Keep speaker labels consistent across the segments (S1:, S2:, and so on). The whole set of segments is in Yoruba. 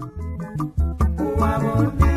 S1: Oh,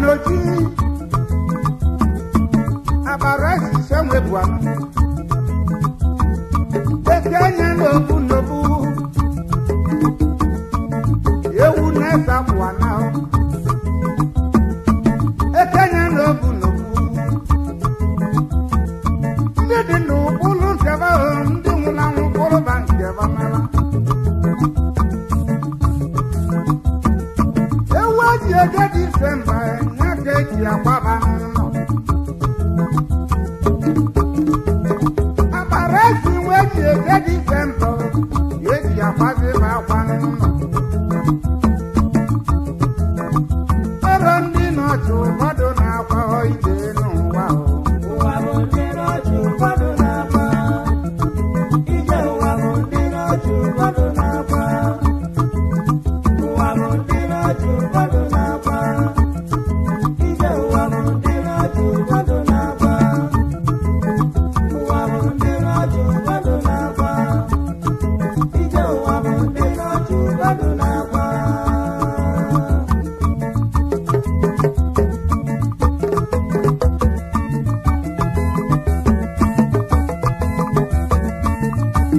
S2: n'oji abara ehicha nwe bụ amụ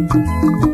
S2: Thank you.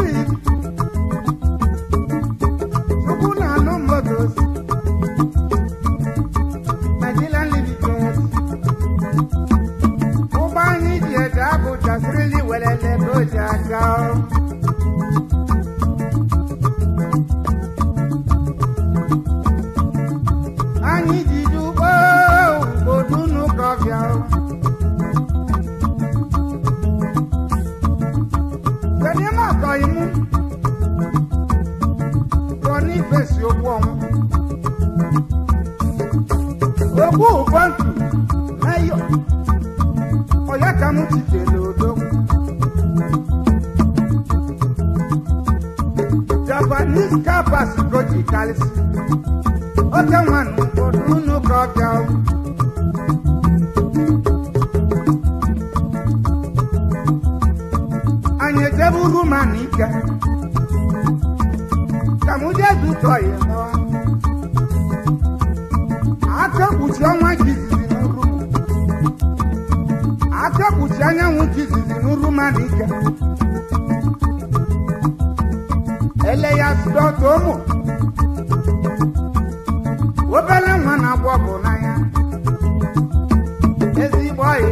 S2: Street.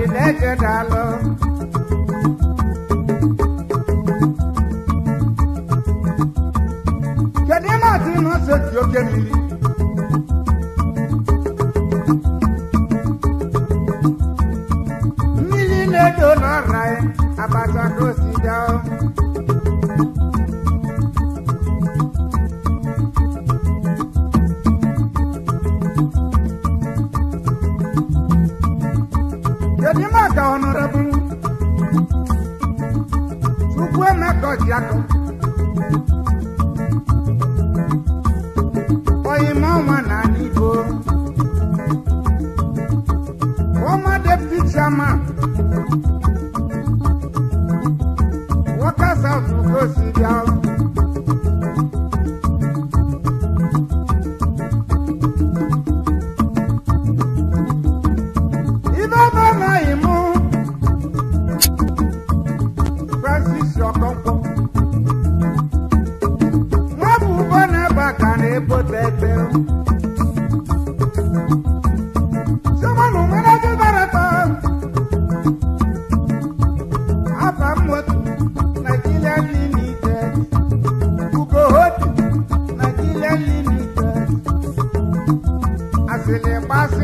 S2: ìdẹ́kẹ̀dá lọ. Kèdè máa ti mọ̀ ṣe tí ó gé mi rí. Mílí lè dò lọ́ra ẹ̀, àbàtà ló sì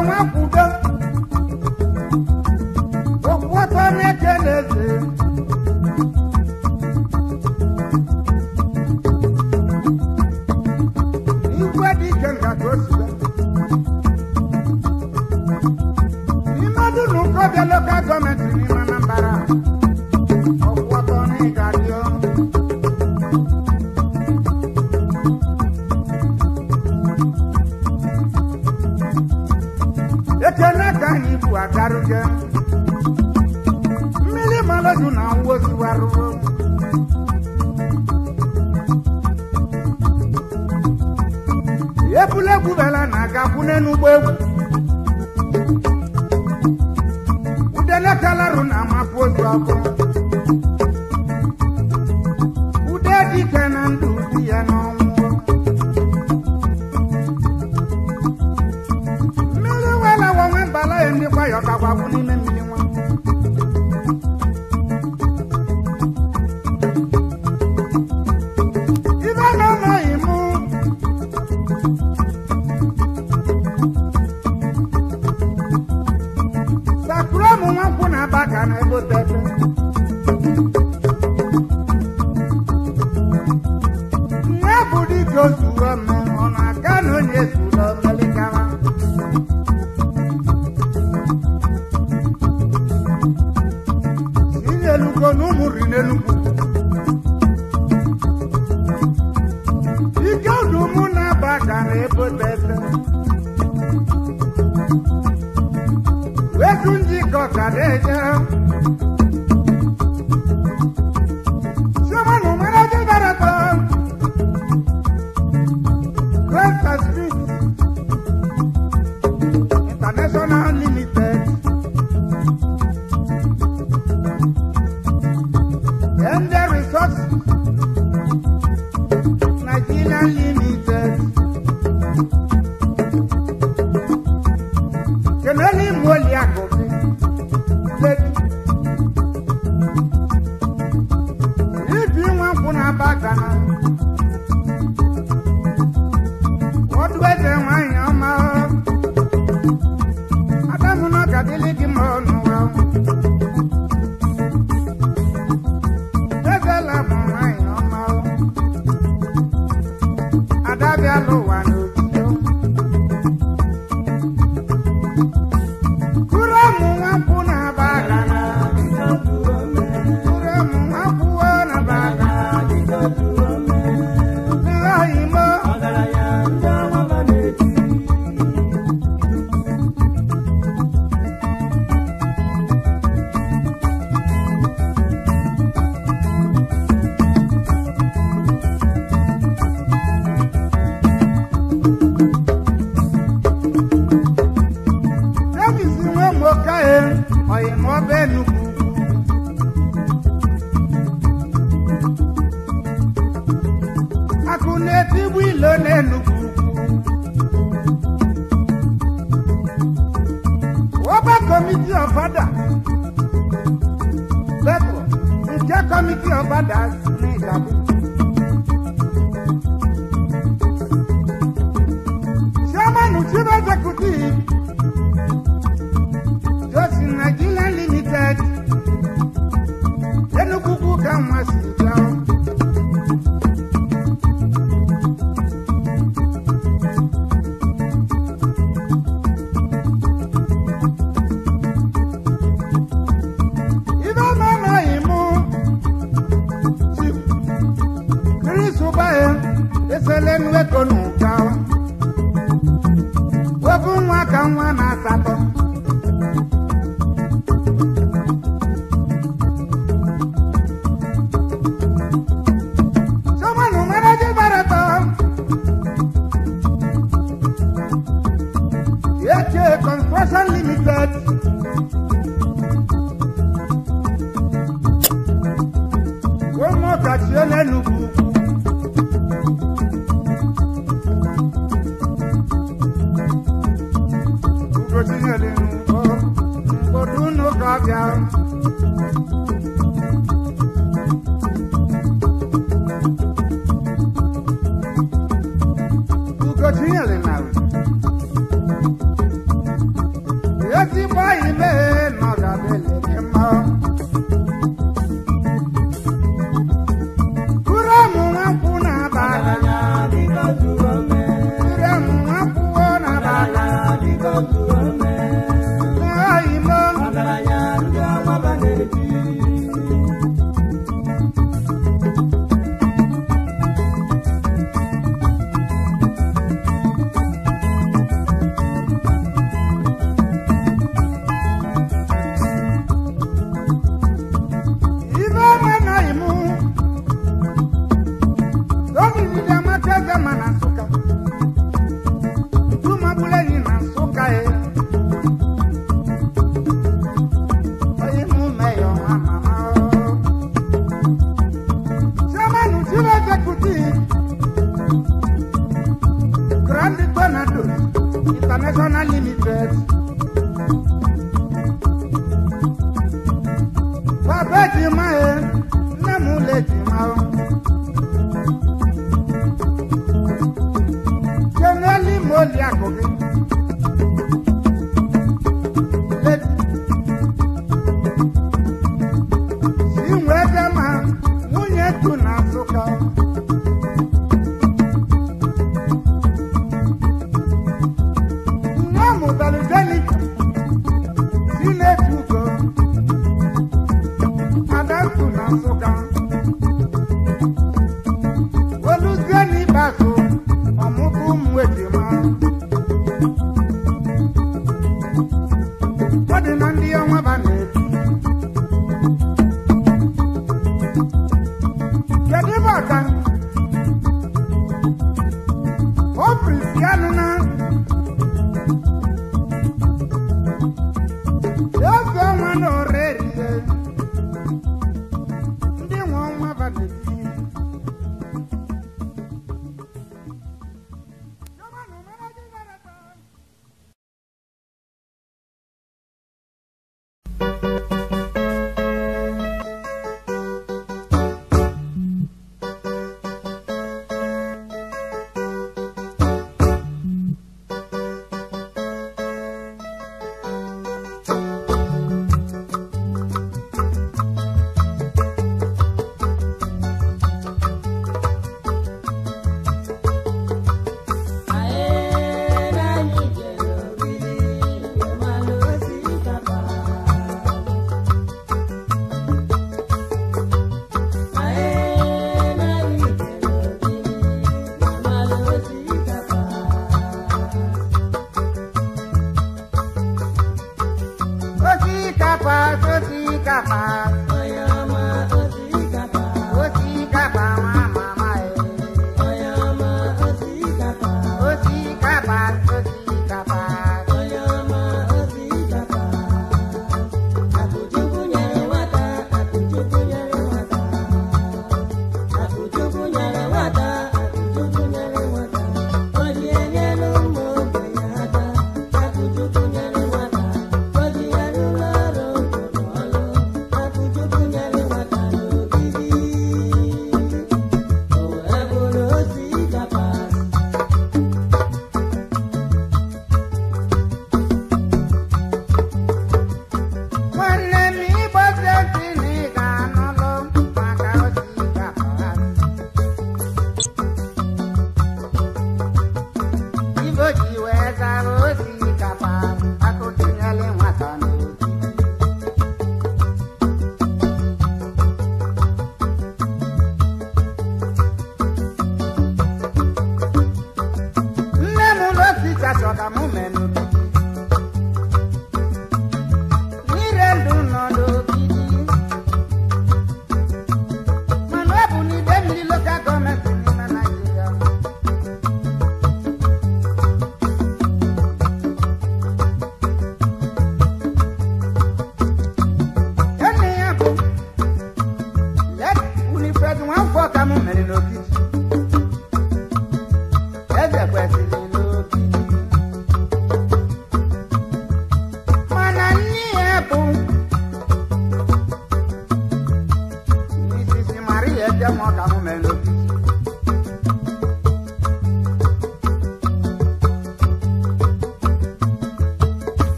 S2: I want Thank you.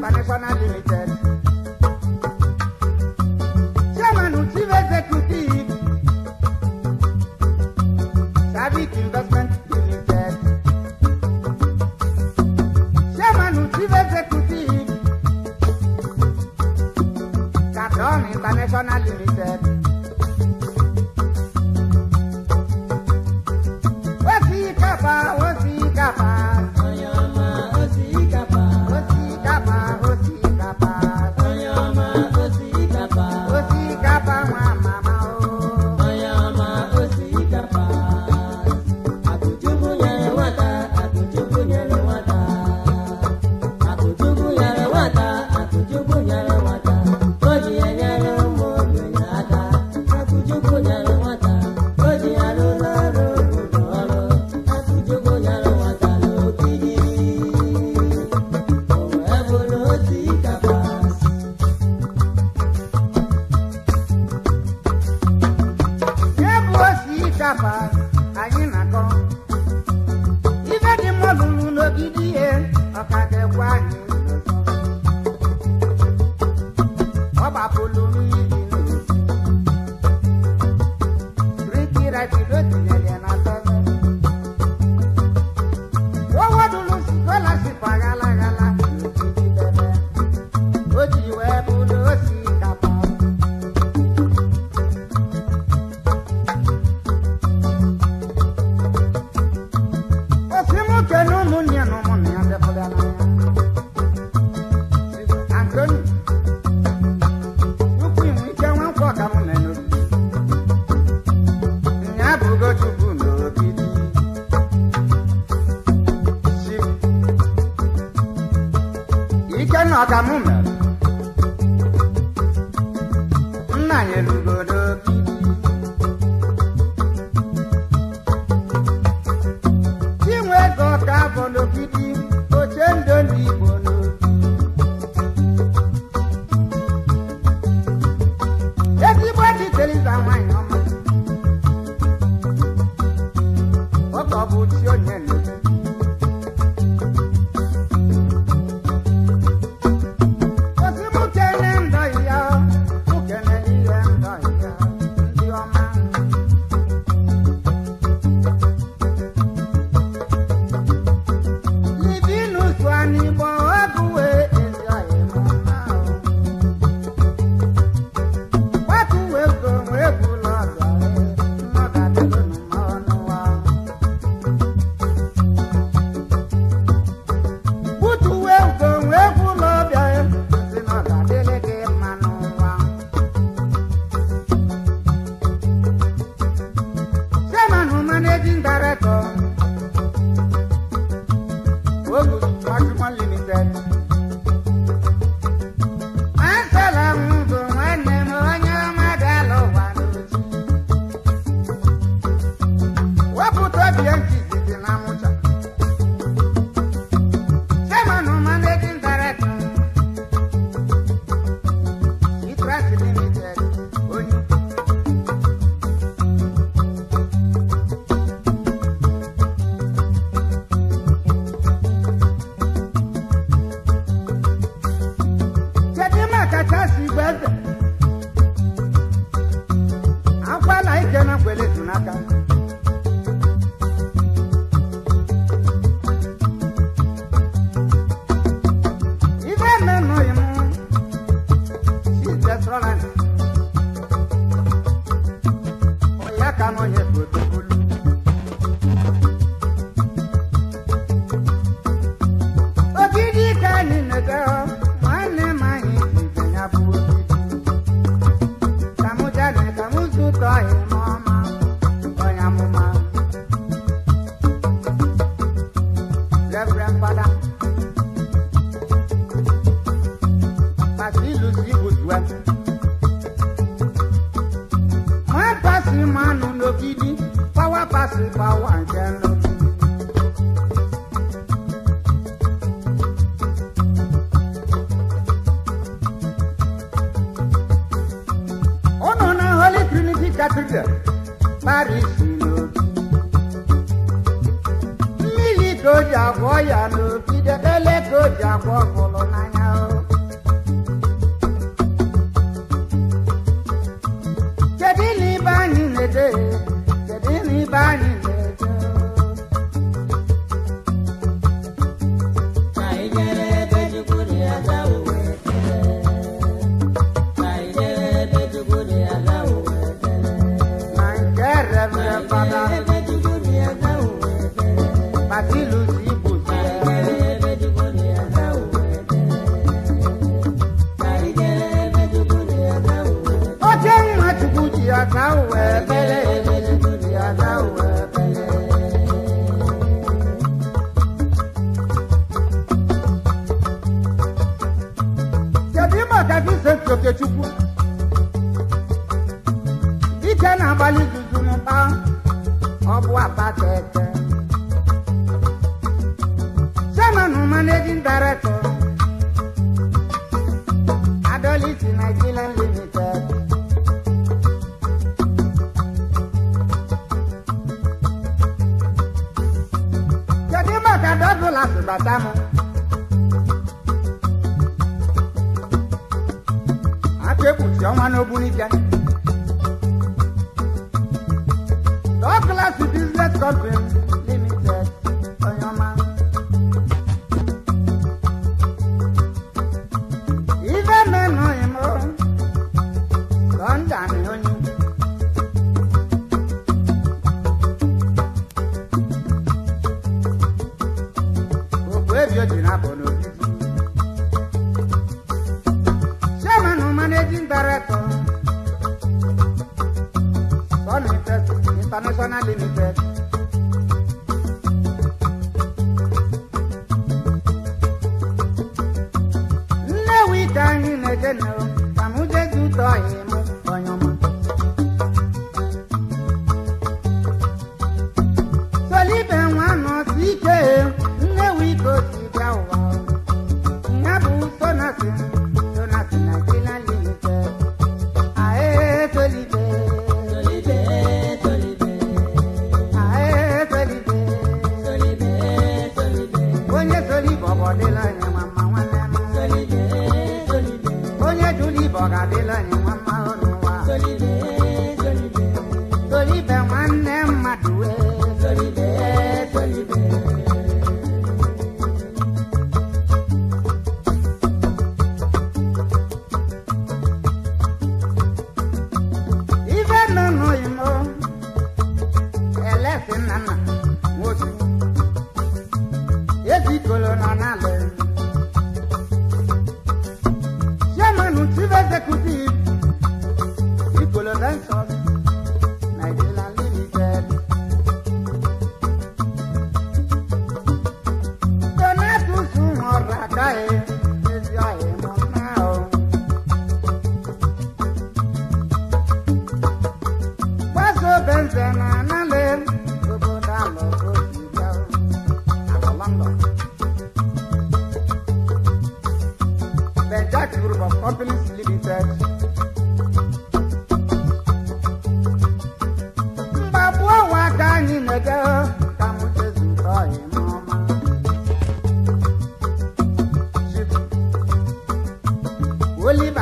S2: Panepana Limited. osote Chukwu dike na-agbalị guzurumba ọ bụ apata ete chairman director Adolisi Nigerian Limited kedu maka dọbụla sibata m Chioma n'Obunike. ike class business conference.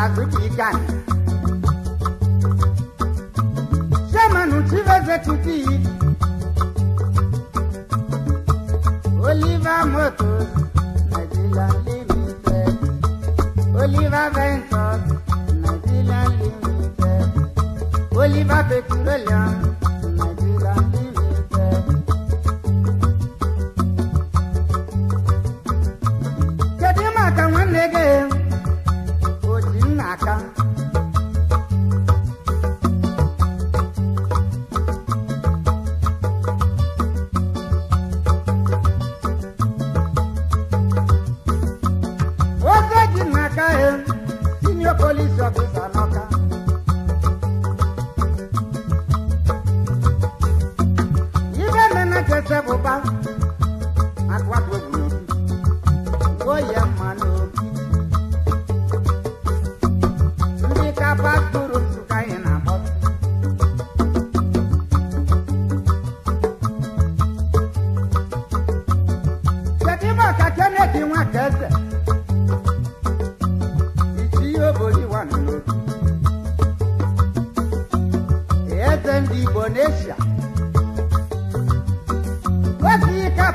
S2: ba tuti gan Jamanu chiveze tuti Oliver Motors Nigerian Limited Oliver Ventures Nigerian Limited Oliver Petroleum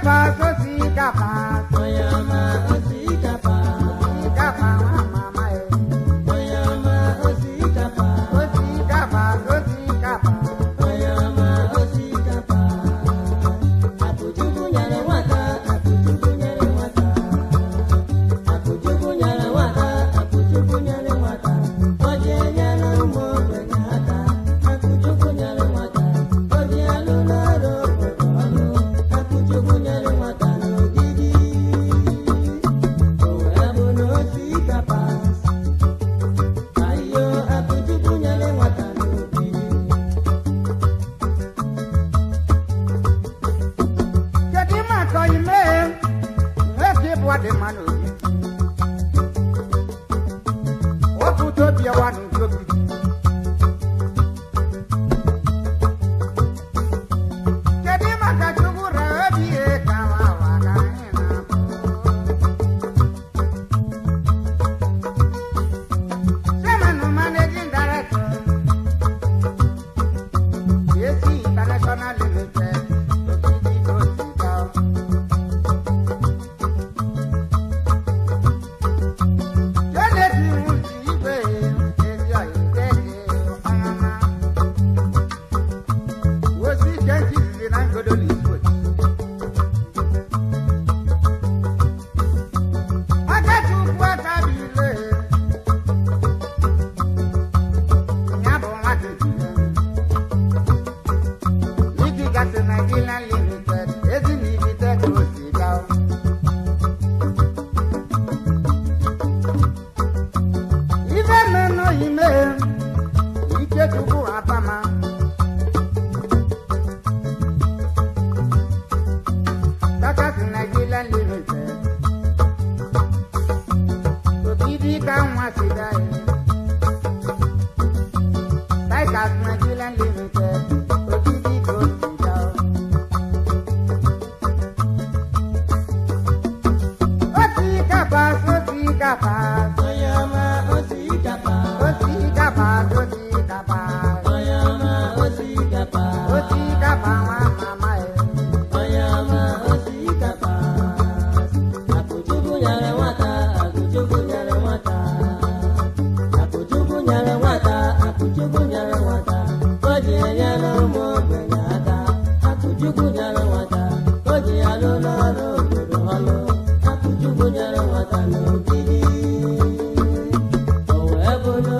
S2: kàfà sósì
S1: kàfà.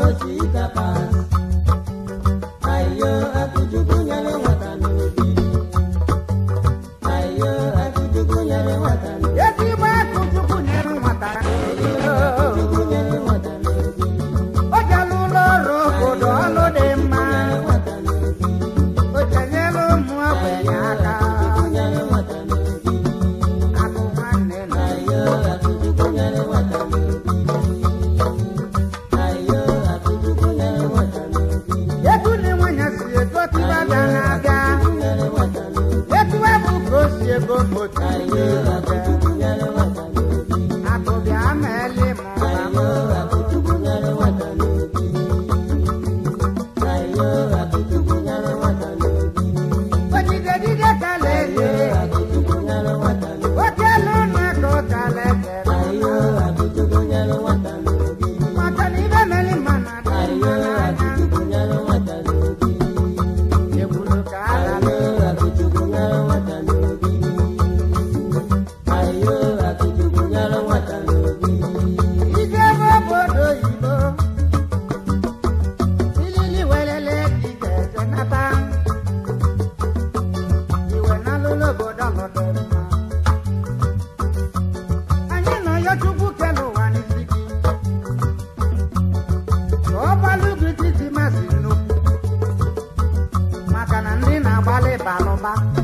S1: ojitaka.
S2: back.